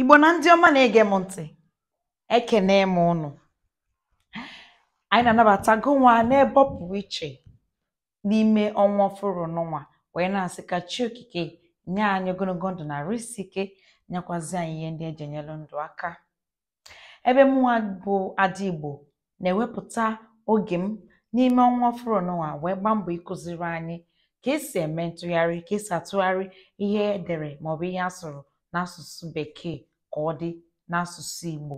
igbo na ndị ọma na-ege m ntị ekene m ụnụ anyị na-anabatago anabata nwa pụrụ iche n'ime ọnwa ọfụrụ n'ụwa wee na-asị ka chi okike nye anyị ogologo ndụ na risi ike nyekwazi anyị ihe ndị eji enyelu ndụ aka ebe mụnwa bụ ada igbo na-ewepụta oge m n'ime ọnwa ọfụrụ n'ụwa wee gbaa mbọ ịkụziri anyị ka esi eme ntụgharị ka esi atụgharị ihe edere maọbụ ihe a sụrụ n'asụsụ bekee ka ọ dị n'asụsụ Igbo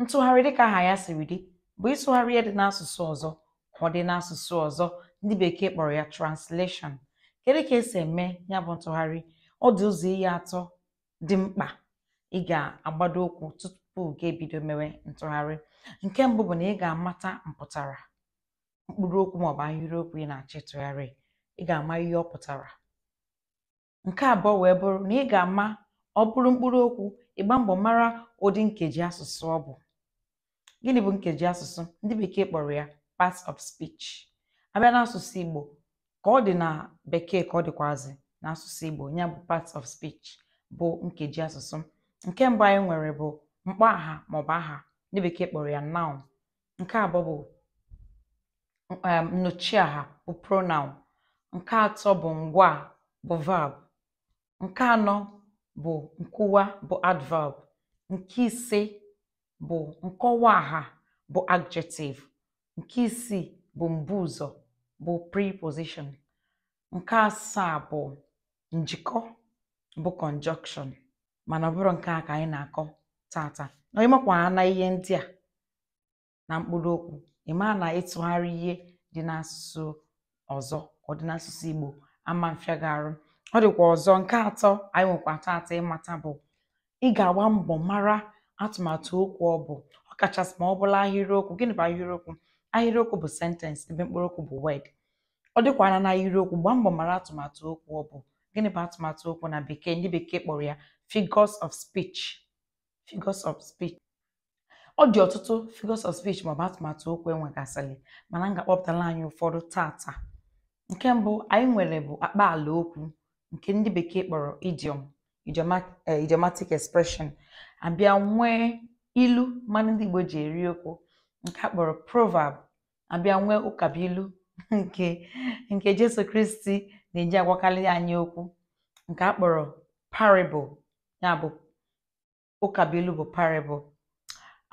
ntụgharị dịka aha ya siri dị bụ ịtụgharị ihe dị n'asụsụ ọzọ ka ọ dị n'asụsụ ọzọ ndị bekee kpọrọ ya translation kedu ka esi eme ya bụ ntụgharị ọ dị ụzọ ihe atọ dị mkpa ị ga-agbado ụkwụ tupu gị ebido mewe ntụgharị nke mbụ bụ na ị ga-amata mpụtara mkpụrụ okwu maọbụ ahịrịokwu ị na-achọ ịtụgharị ị ga-ama ihe ọ pụtara nke abụọ wee bụrụ na ị ga-ama ọ bụrụ mkpụrụ okwu ịgba mbọ mara ụdị nkeji asụsụ ọ bụ gịnị bụ nkeji asụsụ ndị bekee kpọrọ ya part of speech abịa n'asụsụ Igbo ka ọ dị na bekee ka ọ dịkwazị n'asụsụ Igbo ya bụ part of speech bụ nkeji asụsụ nke mbụ anyị nwere bụ mkpọ aha maọbụ aha ndị bekee kpọrọ ya noun nke abụọ bụ um, aha bụ pronoun nke atọ bụ ngwa bụ verb Nke anọ bụ nkụwa bụ adverb. Nke ise bụ nkọwa aha bụ adjective. Nke isii bụ mbụ ụzọ bụ preposition. Nke asaa bụ njikọ bụ conjunction mana ọbụrụ nke a ka anyị na-akọ tata Nà ị na ihe ndị a, na mkpụrụ okwu ị̀ na ịtụgharị ihe dị n'asụsụ ọzọ ọ n'asụsụ Igbo, ama mfịa ọ dịkwa ọzọ nke atọ anyị nwekwa tata ịmata bụ ị ga-agba mbọ mara atụmatụ okwu ọ bụ ọ kachasị ma ọ bụla ahịrịokwu gịnị bụ ahịrịokwu ahịrịokwu bụ sentensị ebe okwu bụ wed ọ dịkwana na ahịrịokwu gbaa mbọ mara atụmatụ okwu ọ bụ gịnị bụ atụmatụ okwu na bekee ndị bekee kpọrọ ya figures of speech of ọ dị ọtụtụ figures of ọ maọbụ atụmatụ okwu enwegasịrị mana m ga-akpọpụtala anyị ụfọdụ tata nke mbụ anyị nwere bụ ala okwu nke ndị bekee kpọrọ idiom eh, idiomatic expression abịa nwee ilu mmanụ ndị Igbo ji eri okwu nke a kpọrọ proverb abịa nwee nke nke Jesu Kristi na-eji agwakarị anyị okwu nke akpọrọ kpọrọ parable ya bụ ụkabuilu bụ parable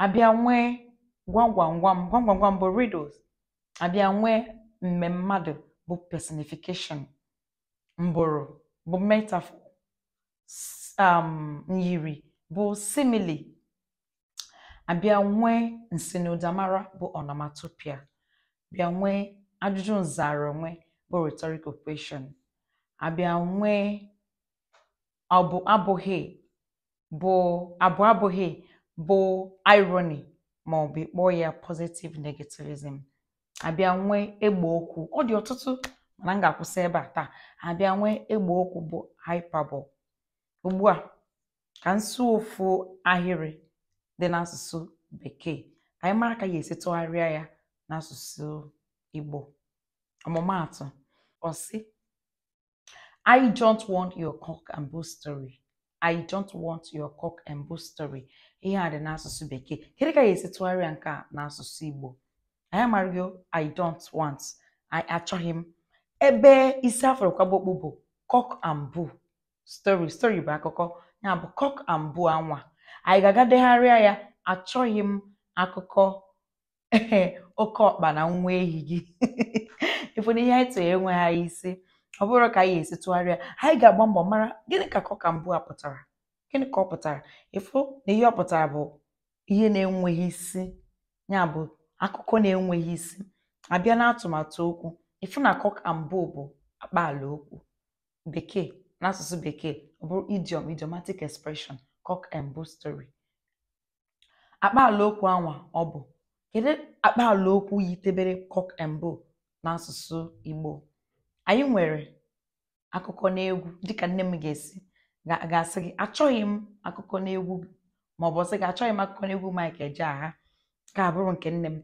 abịa nwee gwam bụ riddles abịa mmemmadụ bụ personification mbụrụ bụ metafọ um bụ simili; abịa nwee nsinụdamara bụ onomatopoeia bịa nwee ajụjụ nzara onwe bụ rhetorical question abịa nwee abụ abụghị bụ abụ abụghị bụ irony ma ọ bụ ịkpọ ya positive negativism abịa nwee egbe okwu ọ dị ọtụtụ mana m ga-akwụsị ebe a taa abịa nwee egbe okwu bụ hyperbole ugbu a ka nso ofu ahịrị dị n'asụsụ bekee ka anyị mara ka ya esi tụgharịa ya n'asụsụ igbo ọmụmaatụ ọsị I don't want your cock and bull story I don't want your cock and bull story ihe a dị n'asụsụ bekee kedu ka ya esi tụgharịa nke a n'asụsụ igbo anyị amaghị I don't want achọghị m ebe isi afrọkwabokpu bụ cock and bull story story bụ akụkọ ya bụ cok and anwa anyị ga-aga degharịa ya achọghị m akụkọ ee oke ọkpa na nwa ehi gị ịfụ na ihe anyị tụrụ enweghị isi ọ bụrụ ka anyị esi tụgharịa anyị ga-agba mbọ mara gịnị ka cok and a pụtara gịnị ka ọ pụtara ịfụ na ihe ọ pụtara bụ ihe na-enweghị isi ya bụ akụkọ na-enweghị isi abịa na-atụmatụ okwu ịfụ na cock and bull bụ akpaala okwu bekee n'asụsụ bekee ọ bụrụ idiom idiomatic expression cock and bull story akpaala okwu anwa ọ bụ kedu akpaala okwu yitebere cock and bull n'asụsụ Igbo anyị nwere akụkọ n'egwu dịka nne m ga-esi ga-asị gị achọghị m akụkọ n'egwu ma ọ ọsị gị achọghị m akụkọ n'egwu eji agha ka abụrụ nke nne m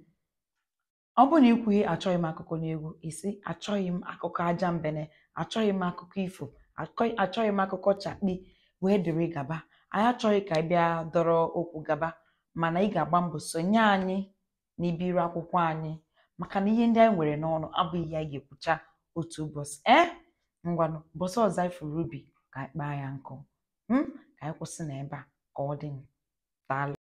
ọ bụrụ na ikwughị achọghị m akụkọ n'egwu isi achọghị m akụkọ aja mbene achọghị m akụkọ ifo achọghị m akụkọ chakpi wee dịrị gaba anyị achọghị ka ị bịa dọrọ okwu gaba mana ị ga-agba mbọ sonye anyị na ibiri akwụkwọ anyị maka na ihe ndị anyị nwere n'ọnụ abụghị ya ga-ekwucha otu ụbọchị e ngwanụ ụbọchị ọzọ anyị fụrụ ubi ka anyị kpaa ya nkụ hmm? ka anyị kwụsị na ebe a ka ọ dị daalụ